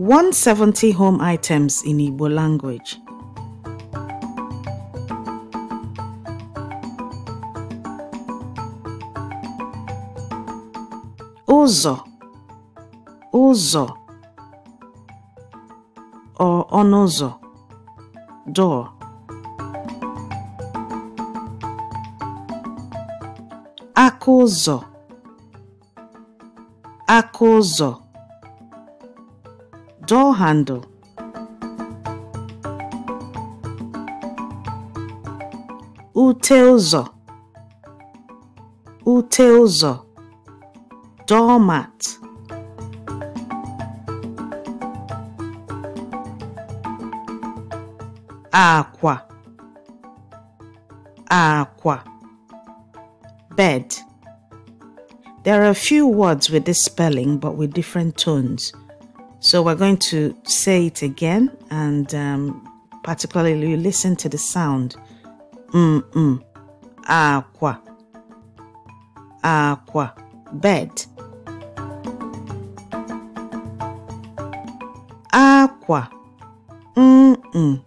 170 home items in Igbo language. Uzo, uzo, or onuzo, door. Aka ụzọ, handle. Ute ụzọ doormat Aqua. Aqua. bed there are a few words with this spelling but with different tones so we're going to say it again, and um, particularly you listen to the sound. Mm mm. Aqua. Aqua. Bed. Aqua. Mm mm.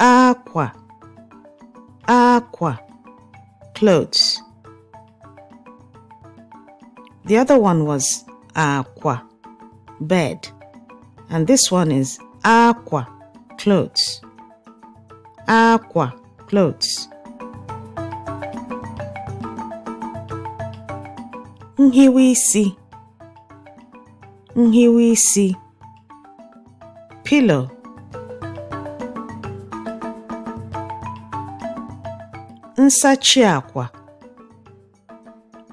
Aqua. Aqua. Clothes. The other one was aqua bed. And this one is aqua, clothes. Aqua, clothes. see. Here we see. Pillow. Nsachi aqua.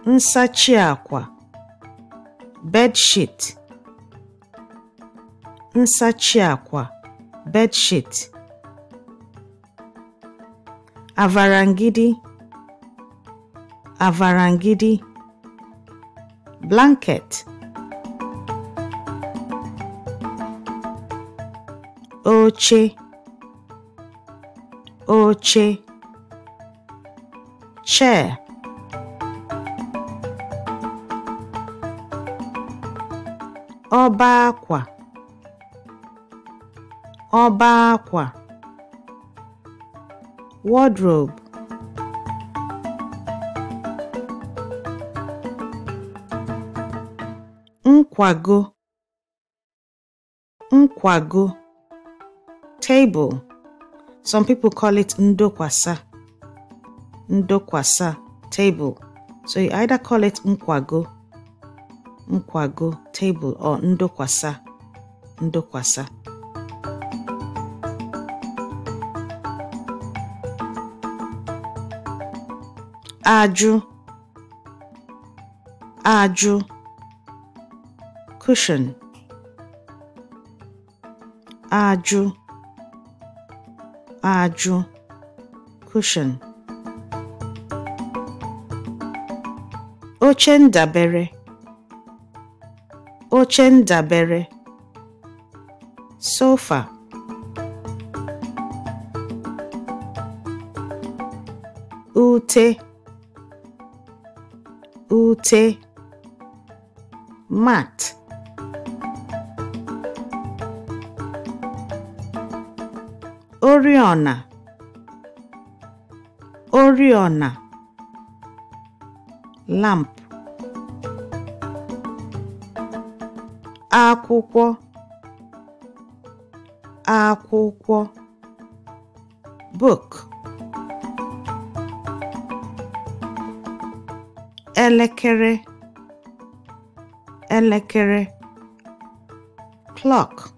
Nsachi aqua. Bed sheet. nsachi akwa bedsheet, avarangidi avarangidi blanket oche oche chair ọba akwa ọba akwa wardrobe nkwago nkwago table some people call it ndokwasa ndokwasa table so you either call it nkwago nkwago table or ndokwasa ndokwasa ajụ ajụ cushion ajụ ajụ cushion oche ndabere oche ndabere sofa ute ute mat oriọna oriọna lamp akwụkwọ akwụkwọ book elekere elekere clock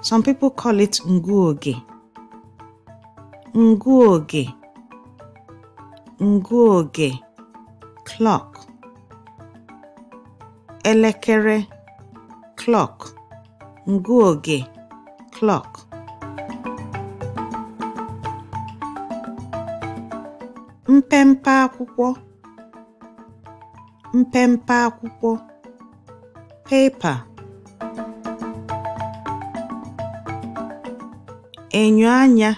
some people call it nguoge nguoge nguoge clock elekere clock nguoge clock mpempe akwụkwọ mpempe akwụkwọ pepa enyo anya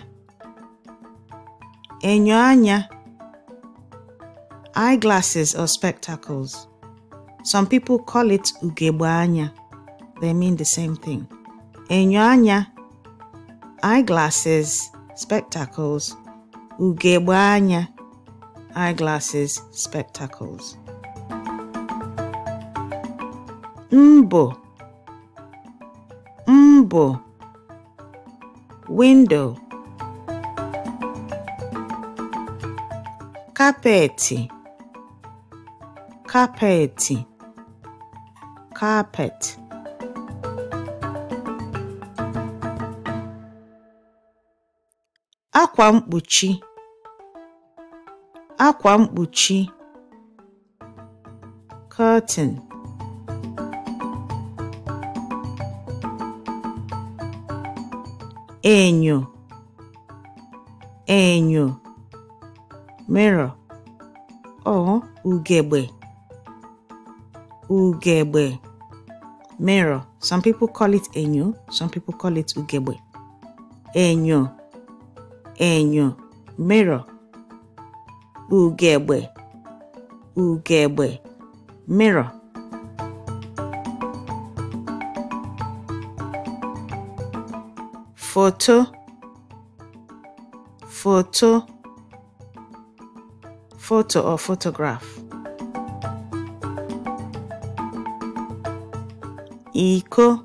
enyo anya eyeglasses or spectacles some people call it ugegbe anya they mean the same thing enyo anya eyeglasses spectacles ugegbe anya eyeglasses spectacles Mbo Mbo windo kapeti kapeti kapet akwa mkpuchi akwa mkpuchi curtain enyo enyo mirror or oh, ugegbe ugegbe mirror some people call it enyo some people call it ugegbe enyo enyo mirror ugegbe ugegbe mirror photo photo photo or photograph eco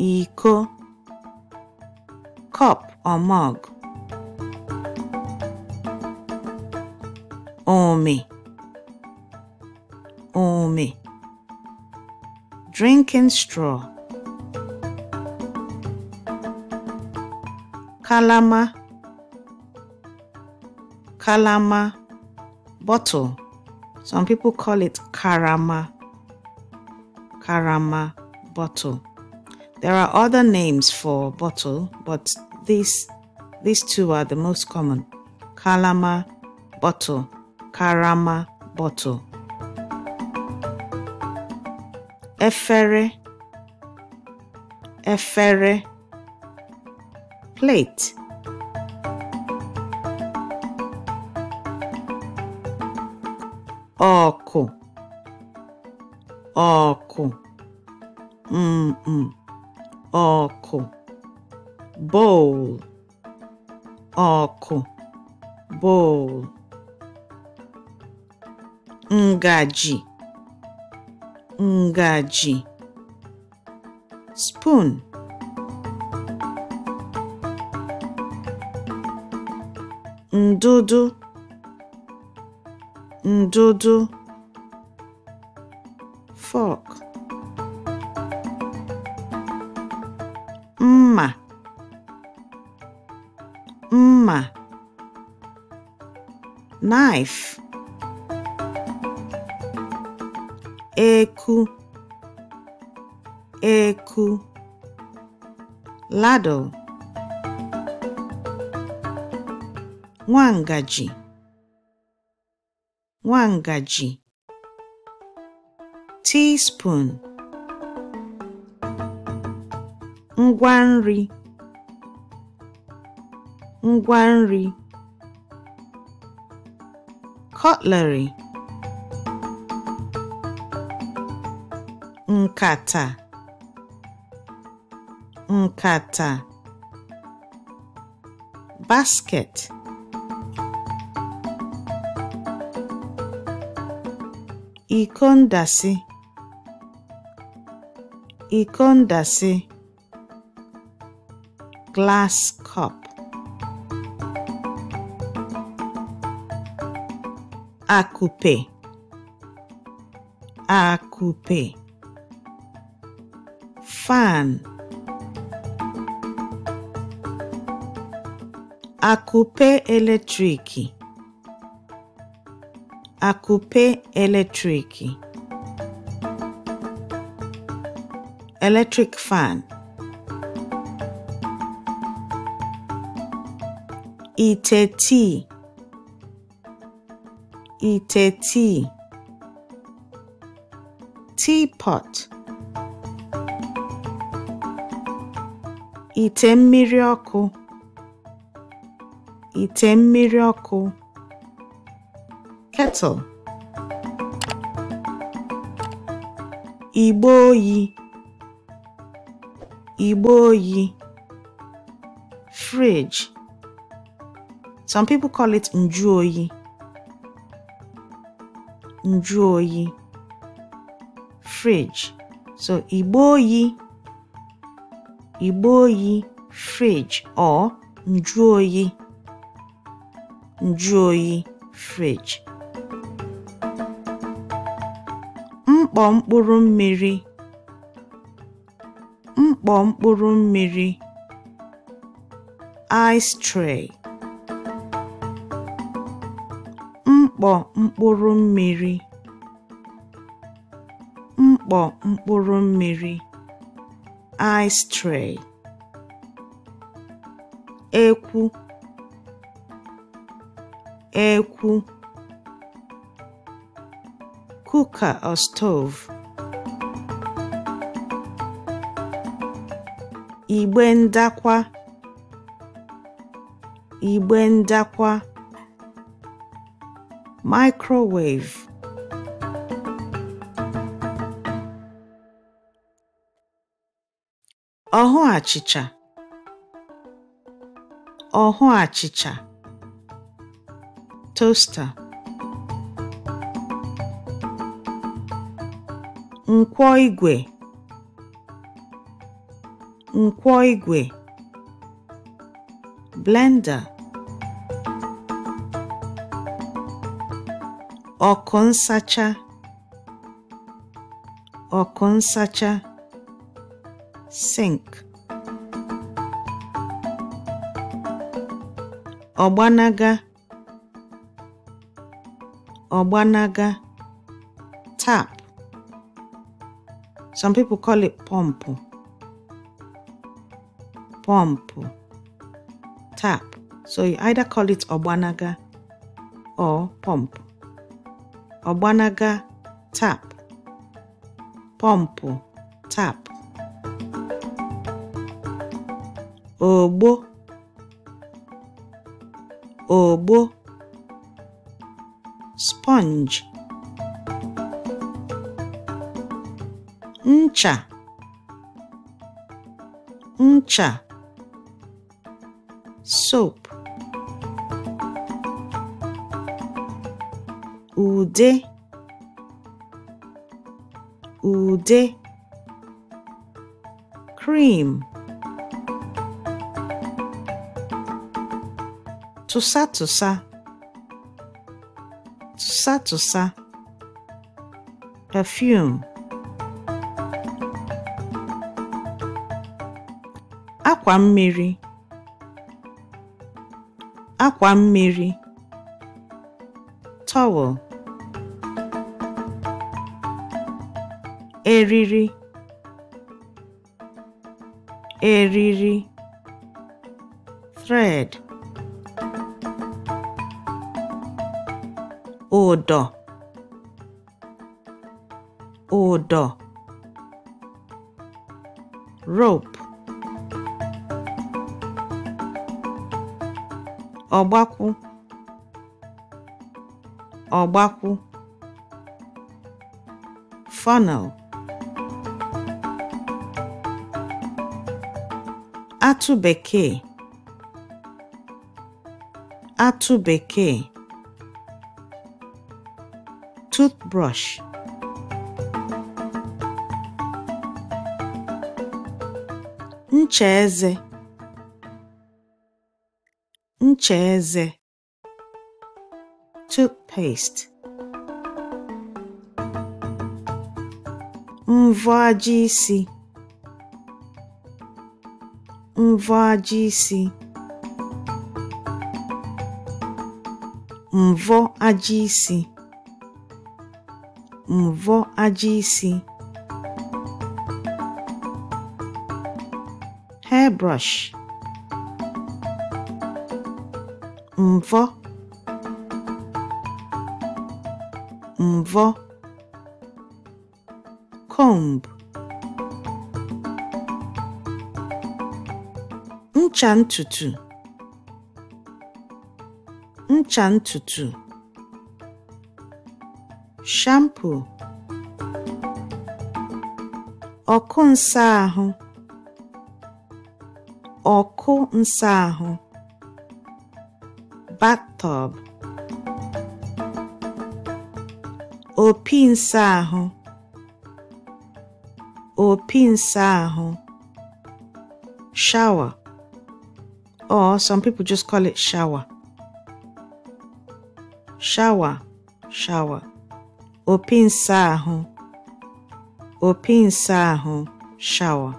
eco cup or mug omi omi drinking straw kalama kalama bottle some people call it karama karama bottle there are other names for bottle but these these two are the most common kalama bottle karama bottle efere efere plate. Oco. Oco. ọkụ mkpụ Oco. Mm, mm. bowl Oco. bowl ngaji ngaji spoon ndụdụ ndụdụ fork mma mma knife eku eku ladle nwangaji nwangaji teaspoon ngwa nri ngwa nri cutlery nkata nkata basket Ikondasi, ndasị iko ndasị glass cup akụpe akupe fan akụpe eletriki Akụpe eletriki — eletrik fan ite tii tii teapot ite mmiri ọkụ ite mmiri ọkụ kettle. Igboyi. Igboyi. Fridge. Some people call it njuoyi. Njuoyi. Fridge. So igboyi. Igboyi fridge or njuoyi. Njuoyi fridge. mkpọ mkpụrụ mmiri mkpọ mkpụrụ mmiri ice tray ekwu ekwu cooker or stove. Igbe ndakwa Igbe ndakwa microwave ọhụ achịcha ọhụ achịcha toaster nkwọ igwe nkwọ igwe blender ọkụ nsacha ọkụ nsacha sink ọgbanaga ọgbanaga tap Some people call it pompo. Pompo. Tap. So you either call it obanaga or pompo. Obanaga tap. Pompo tap. Obo. Obo. Sponge ncha ncha soap ude ude cream tụsa tụsa perfume akwa mmiri akwa mmiri towel, eriri eriri thread ụdọ ụdọ rope Ọgbakwụ, ọgbakwụ, funnel atụ bekee atụ bekee toothbrush ncha eze cheeze: eze toothpaste mvọ aja isi mvọ aja isi mvọ aja isi mvọ aja isi hairbrush mvọ mvọ comb ncha ntutu ncha ntutu shampoo ọkụ nsa ahụ ọkụ nsa ahụ bathtub opi nsa ahụ opi nsa ahụ shower or oh, some people just call it shower shower shower opi nsa ahụ opi nsa ahụ shower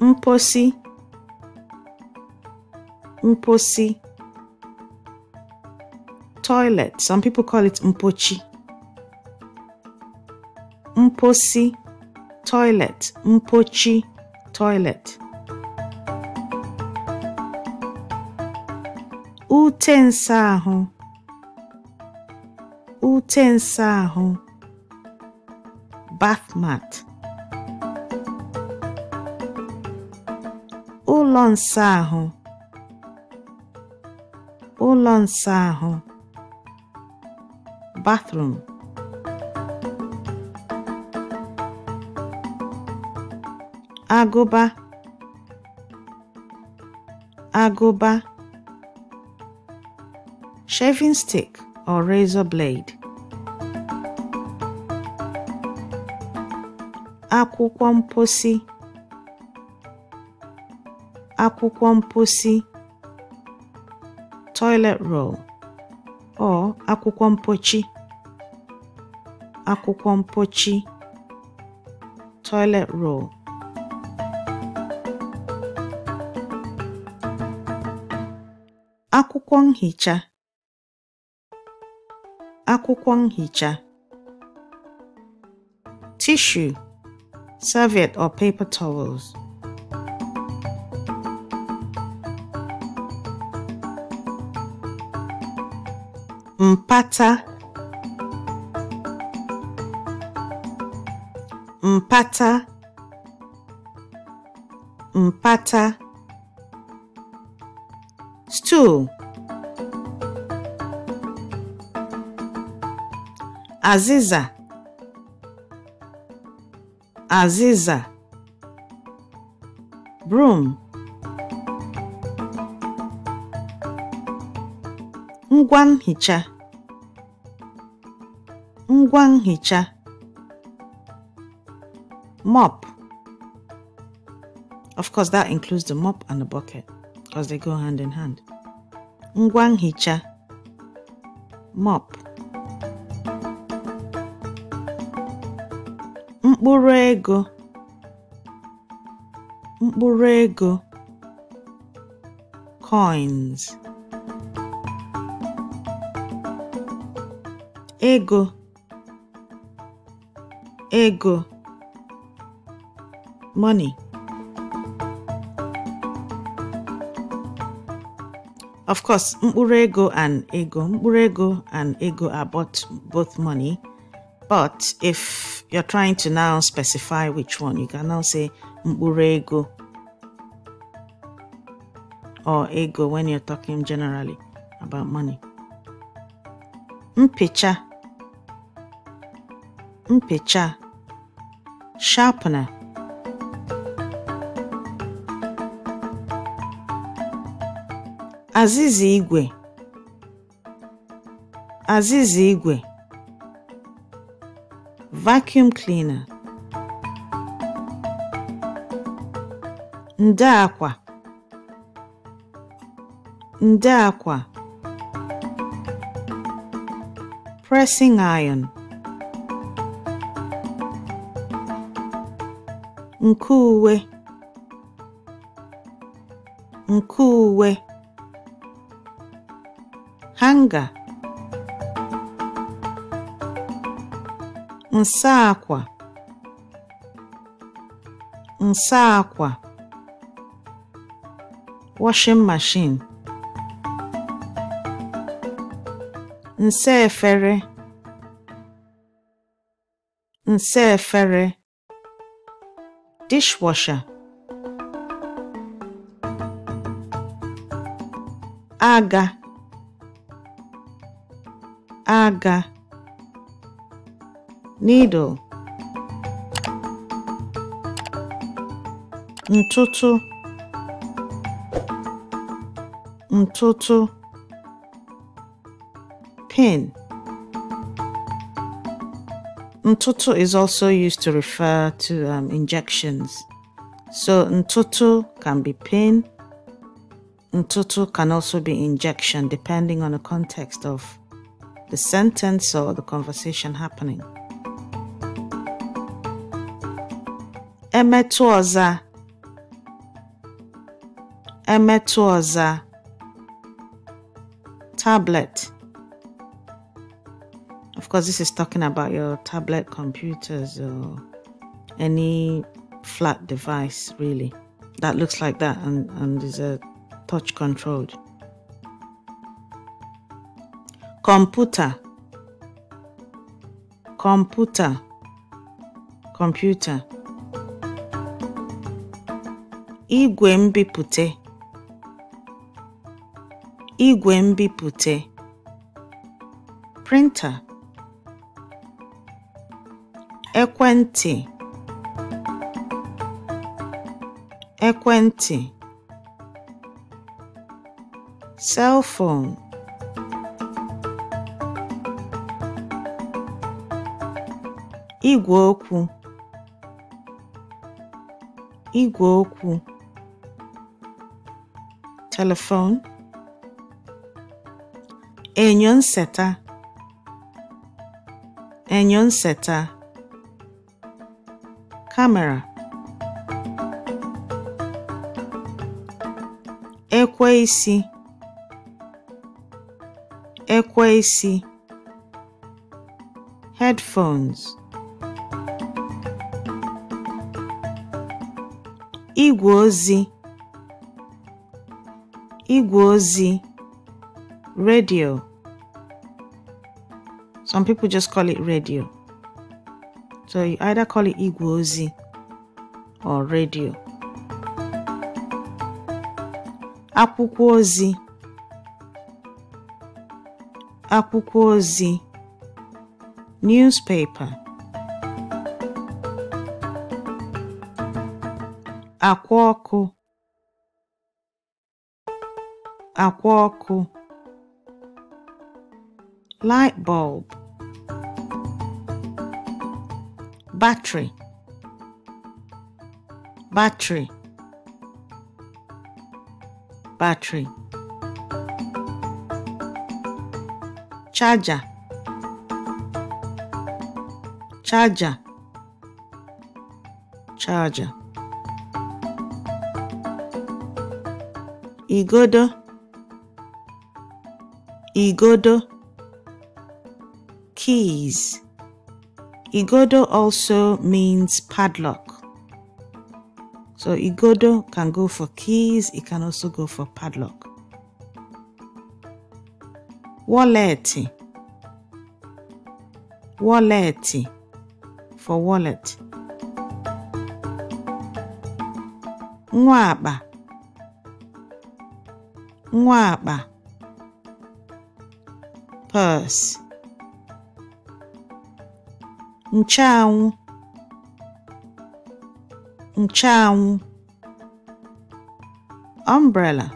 mposi mposi toilet some people call it mpochi mposi toilet mpochi toilet ute nsa ahụ ute bath mat ụlọ nsọ ahụ bathroom agụba agụba shaving stick or razor blade akwụkwọ mposi akwụkwọ mposi toilet roll or akwụkwọ mpochi akwụkwọ mpochi toilet roll akwụkwọ nhicha akwụkwọ nhicha tissue, serviette or paper towels mpata mpata mpata stool azịza azịza broom ngwa nhicha ngwa nhicha mop of course that includes the mop and the bucket because they go hand in hand ngwa nhicha mop mkpụrụ ego mkpụrụ ego coins ego ego money of course mkpụrụ ego and ego mkpụrụ ego and ego are both, both money but if you're trying to now specify which one you can now say mkpụrụ ego or ego when you're talking generally about money mpicha mpị̀cha sharpener azịza igwe azịza igwe vacuum cleaner nde akwa ndo akwa pressing iron nke uwe nke uwe hanga nsa akwa nsa akwa washing machine nsa efere nsa efere dishwasher. Aga aga needle ntutu, ntutu, pin Ntoto is also used to refer to um, injections. So ntoto can be pain. Ntoto can also be injection depending on the context of the sentence or the conversation happening. Emetu ọza. Tablet course, this is talking about your tablet computers or any flat device really that looks like that and, and is a touch controlled. Computer. Computer. Computer. Igwe mbipute. Igwe mbipute. Printer. ekwentị ekwentị cell phone igwe okwu igwe okwu telephone enyo nseta enyo nseta camera. Ekweisi Headphones Igwozi, Igwozi, Radio Some people just call it radio. So you either call it Igwozi or radio. akwụkwọ ozi akwụkwọ ozi newspaper akwa ọkụ akwa ọkụ light bulb battery battery battery charger charger charger igodo igodo keys igodo also means padlock So igodo can go for keys, it can also go for padlock. Wallet. Wallet. for wallet. Mwaba. Mwaba. Purse. Nchanwụ. ncheanwụ umbrella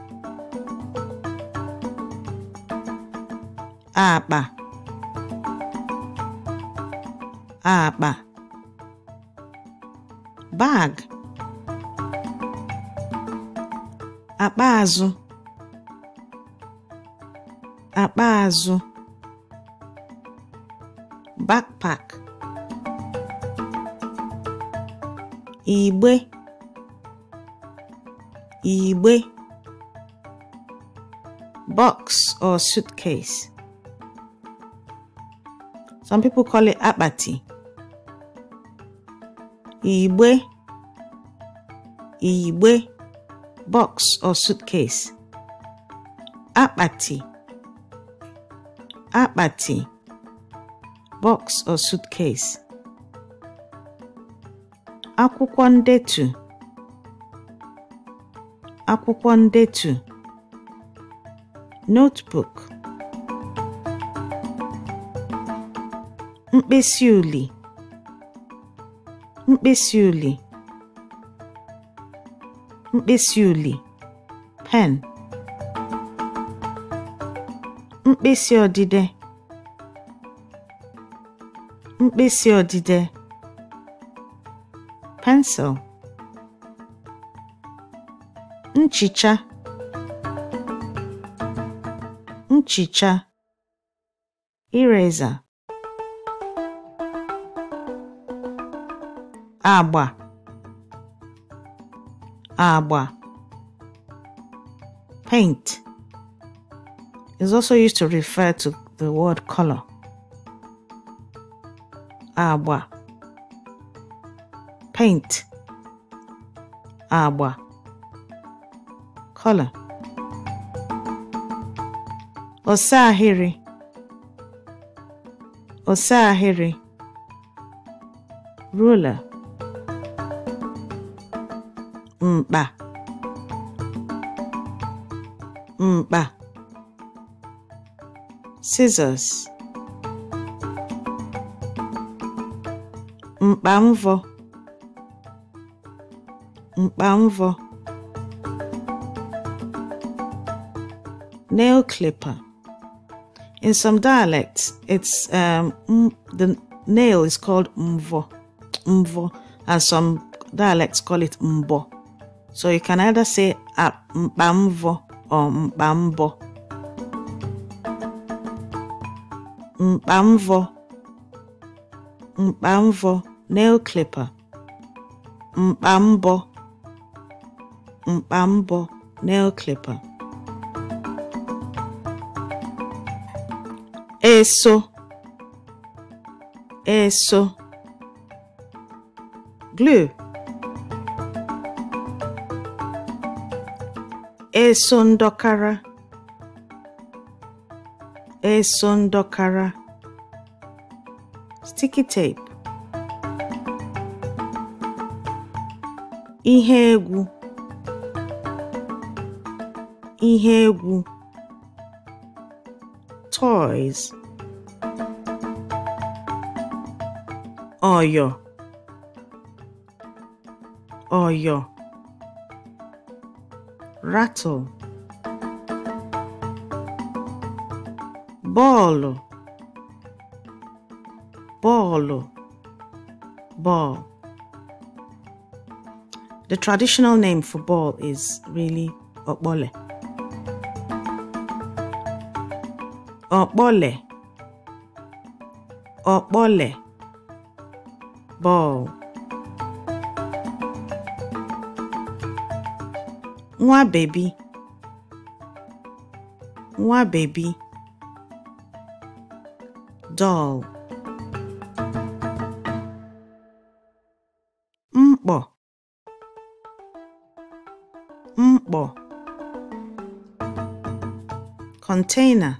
akpa akpa bag akpa azụ akpa azụ backpack igbe igbe box or suitcase some people call it akpati igbe igbe box or suitcase akpati akpati box or suitcase akwụkwọ ndetu akwụkwọ ndetu notebook mkpịsị uli mkpịsị uli mkpịsị uli pen mkpịsị odide mkpịsị odide pencil. Nchicha. Nchicha. Eraser. Agba. Agba. Paint is also used to refer to the word color. Agba. paint agba color ọsa ahịrị ọsa ahịrị ruler mkpa mkpa scissors mkpa mvọ mkpa nail clipper in some dialects it's um, the nail is called mvo mvo and some dialects call it mbo so you can either say mkpa or mkpa mbọ mkpa nail clipper mkpa mbọ mkpa mbọ nail clipper eso eso glue eso ndọkara eso ndọkara sticky tape ihe egwu ihe egwu toys ọyọ ọyọ rattle bọọlụ bọọlụ ball The traditional name for ball is really okpole. ọ̀kpọlè ọ̀kpọlè ball nwa bebi nwa bebi doll mkpọ mkpọ container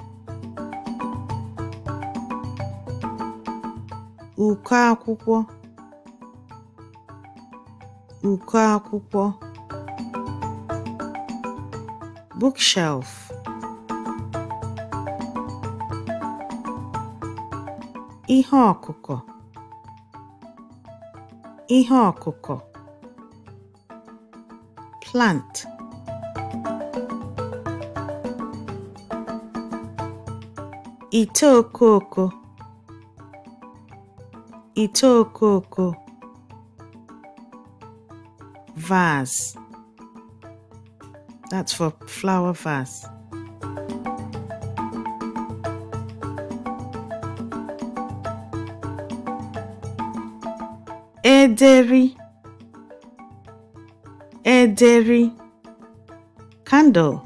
Uko akwụkwọ uko akwụkwọ bookshelf ihe ọkụkọ ihe ọkụkọ plant ite okoko ite okoko vase that's for flower vase ederi ederi candle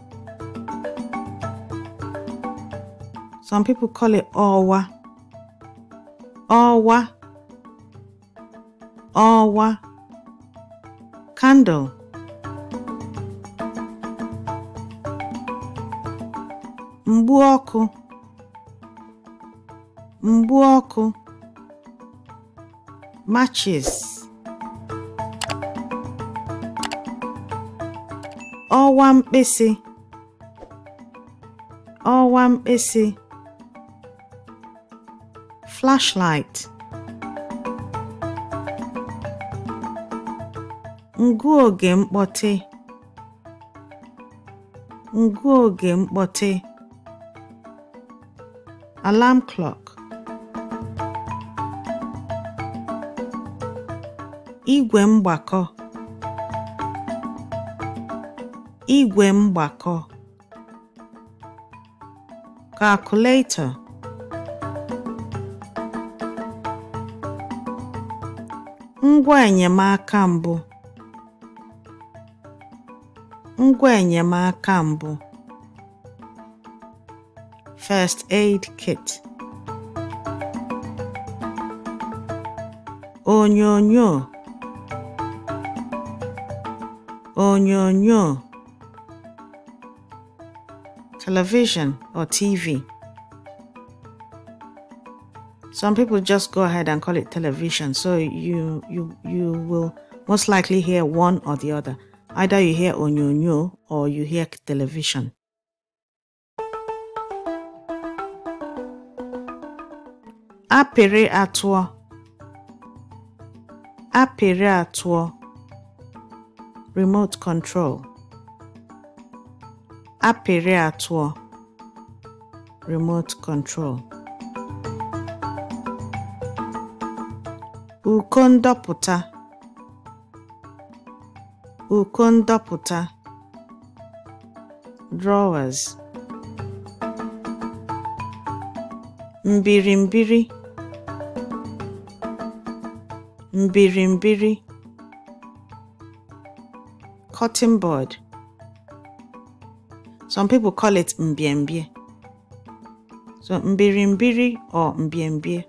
some people call it owa owa ọwa candle mgbu ọkụ mgbu ọkụ matches ọwa mkpịsị ọwa mkpịsị flashlight Ngụoge mkpọtị Ngụoge mkpọtị Alarm clock Igwe mgbakọ Igwe mgbakọ Calculator Ngwa enyemaka mbụ ngwa enyemaka mbụ first aid kit onyonyo onyonyo television or TV. Some people just go ahead and call it television, so you you you will most likely hear one or the other. Either you hear onyonyo or you hear television. Apera atụọ. Apera atụọ. Remote control. Apera atụọ. Remote control. Uko ụkọ ndọpụta drawers mbirimbiri mbirimbiri cotton board some people call it mbiembie so mbirimbiri or mbiembie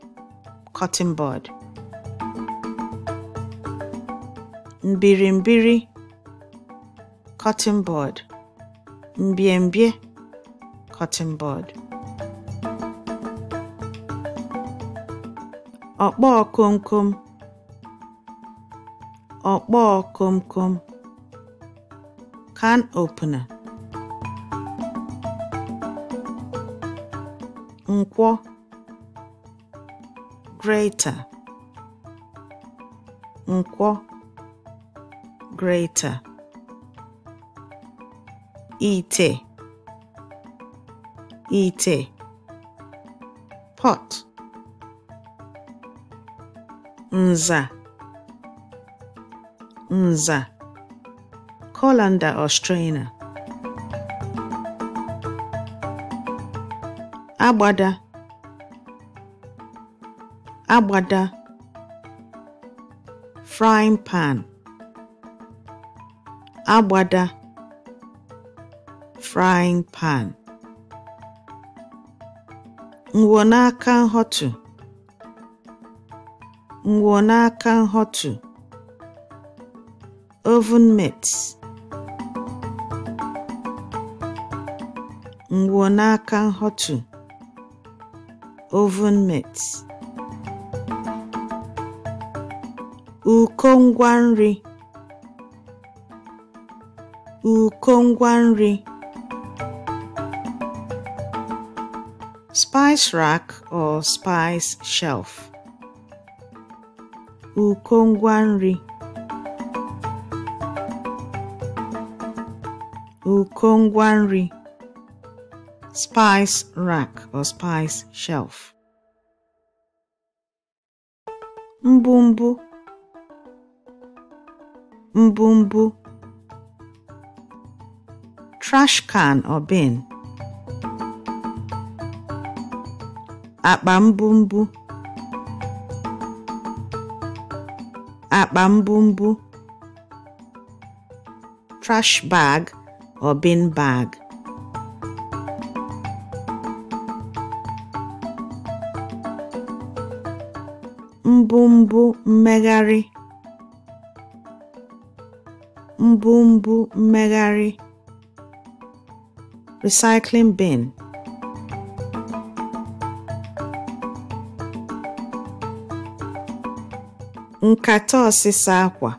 cotton board mbirimbiri cotton board mbiembie cotton bud ọkpọọ komkom ọkpọọ komkom can opener nkwọ greater nkwọ greater ite ite pot nza nza colander or strainer agbada agbada frying pan agbada frying pan ngwo n'aka nhọtụ ngwo n'aka nhọtụ oven mitts ngwo n'aka nhọtụ oven mitts ụkọ ngwa nri ụkọ ngwa nri spice rack or spice shelf. Uko nri. nri. Spice rack or spice shelf. Mbumbu. Mbumbu. Trash can or bin. akpa mbumbu akpa mbumbu trash bag or bin bag mbumbu mmegharị mbumbu mmegharị recycling bin nkata ọsịsa akwa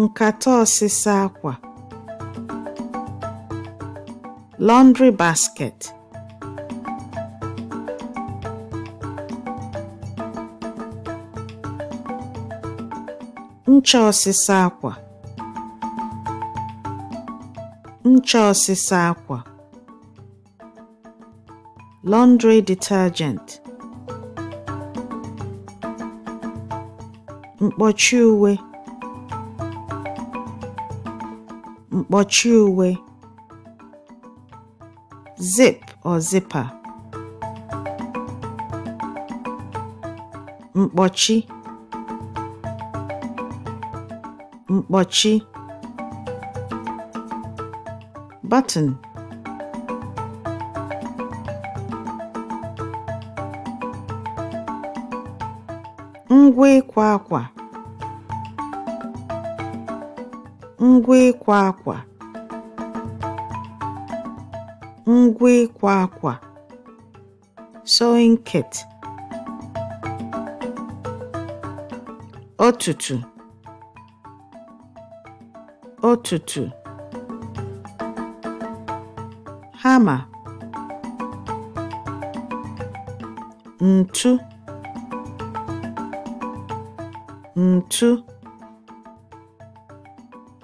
nkata ọsịsa akwa laundry basket ncha ọsịsa akwa ncha ọsịsa akwa laundry detergent mkpọchi uwe mkpọchi uwe zip or zipper mkpọchi mkpọchi button ngwa ịkwa akwa ngwa ịkwa akwa ngwa ịkwa akwa sewing kit ọtụtụ ọtụtụ hama ntu ntu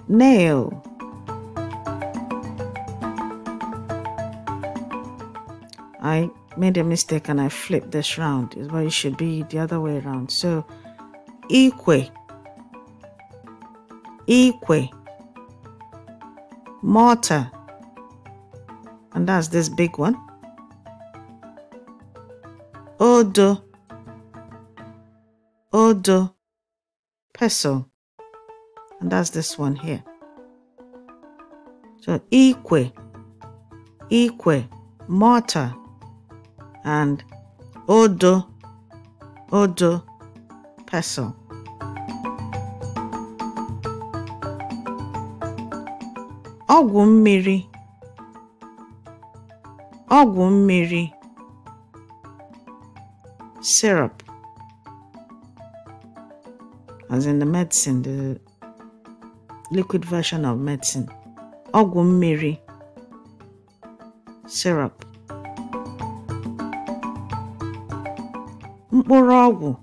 nail I made a mistake and I flipped this round is why it should be the other way around so equi equi mortar and that's this big one odo odo peso. And that's this one here. So equi, equi, mortar, and odo, odo, peso. ọgwụ mmiri ọgwụ mmiri syrup as in the medicine, the liquid version of medicine, ọgwụ syrup, morago,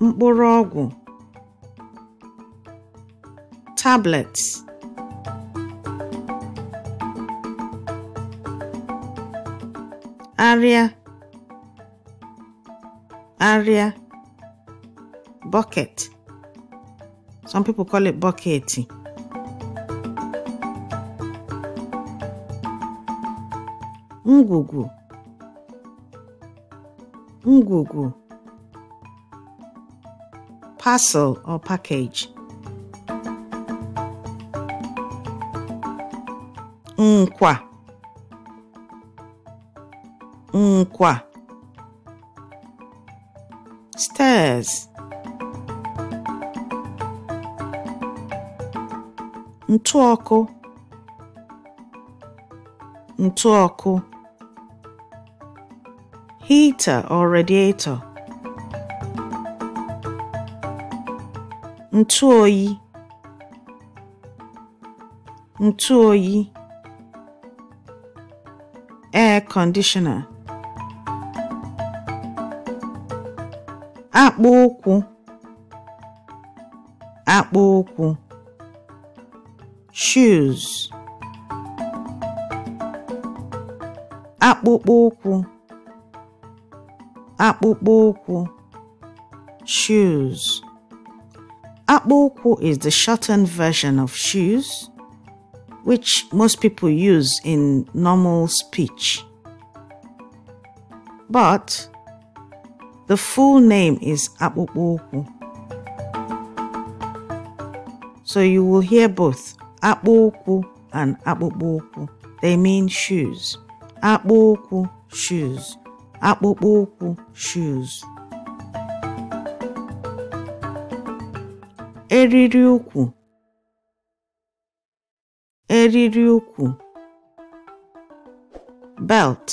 morago tablets, arịa, arịa. bucket. Some people call it bucket. Ngugu. Ngugu. Parcel or package. Nkwa. Nkwa. Stairs. ntụ ọkụ ntụ ọkụ heater or radiator ntụ oyi ntụ oyi air conditioner akpụ ụkwụ akpụ ụkwụ shoes akpụkpọ ụkwụ shoes akpụ is the shortened version of shoes which most people use in normal speech but the full name is akpụkpọ so you will hear both akpụ ụkwụ and akpụkpọ ụkwụ they mean shoes akpụ ụkwụ shoes akpụkpọ ụkwụ shoes eriri ụkwụ eriri belt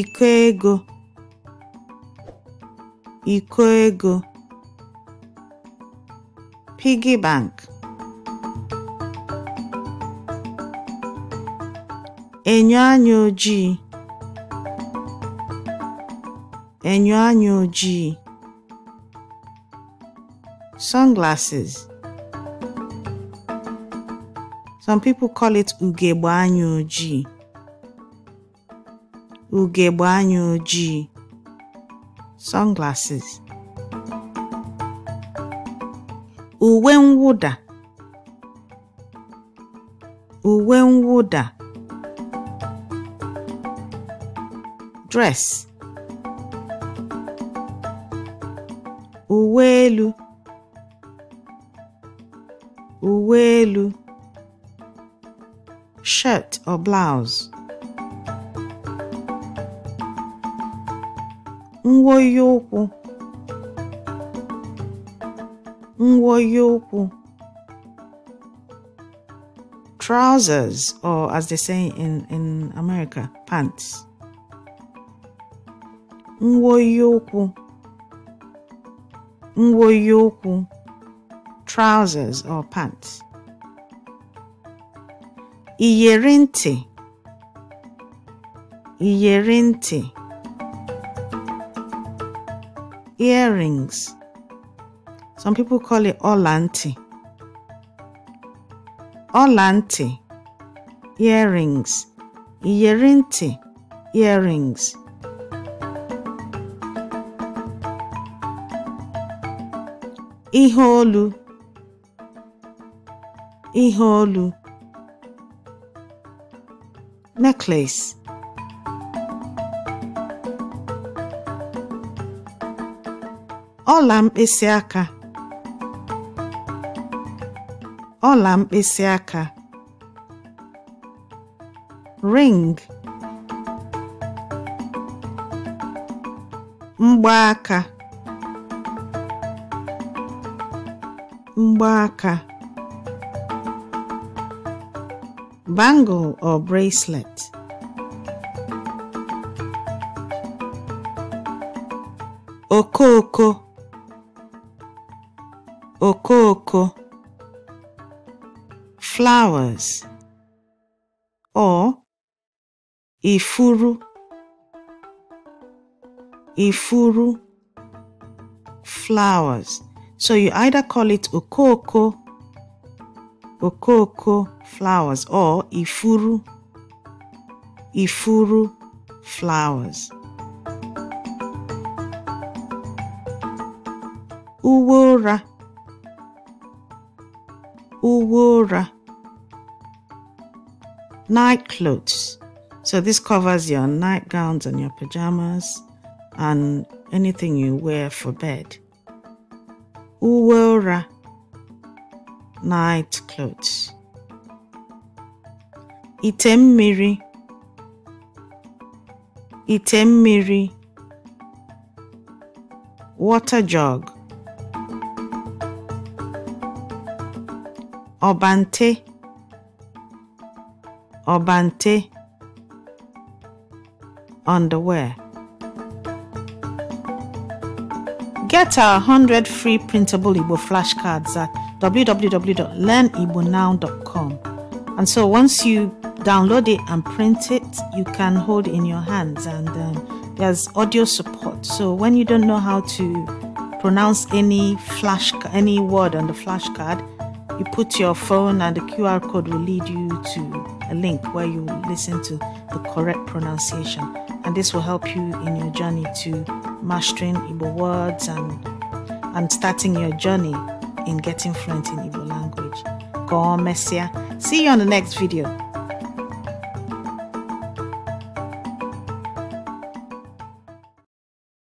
iko iko ego 피기방크 enyo anya ojii enyo anya ojii sunglasses some people call it ugegbe anya ojii ugegbe anya ojii sunglasses uwe mwụda uwe mwụda dress uwe elu uwe elu shirt or blouse nwoyi ụkwụ Nwoye okwu. Trousers, or as they say in, in America, pants. Nwoye okwu. Nwoye okwu. Trousers or pants. Iyeri ntị. Iyeri ntị. Earrings. Some people call it olanti. Olanti, earrings. Yerinti, earrings. iholu, iholu, Necklace. ọla mkpịsị aka ọla mkpịsị aka ring mgbaaka mgbaaka bangle or bracelet okooko okooko flowers or ifuru ifuru flowers so you either call it okoko okoko flowers or ifuru ifuru flowers uwe ụra Night clothes. So this covers your nightgowns and your pajamas and anything you wear for bed. Uwera. Night clothes. Ite mmiri. Water jug. Obante bante underwear. Get our 100 free printable Igbo flashcards at www.learnibonow.com. And so once you download it and print it, you can hold it in your hands. And um, there's audio support. So when you don't know how to pronounce any flash any word on the flashcard, you put your phone and the QR code will lead you to a link where you listen to the correct pronunciation. And this will help you in your journey to mastering Igbo words and, and starting your journey in getting fluent in Igbo language. Go on, Messia. See you on the next video.